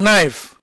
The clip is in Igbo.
knife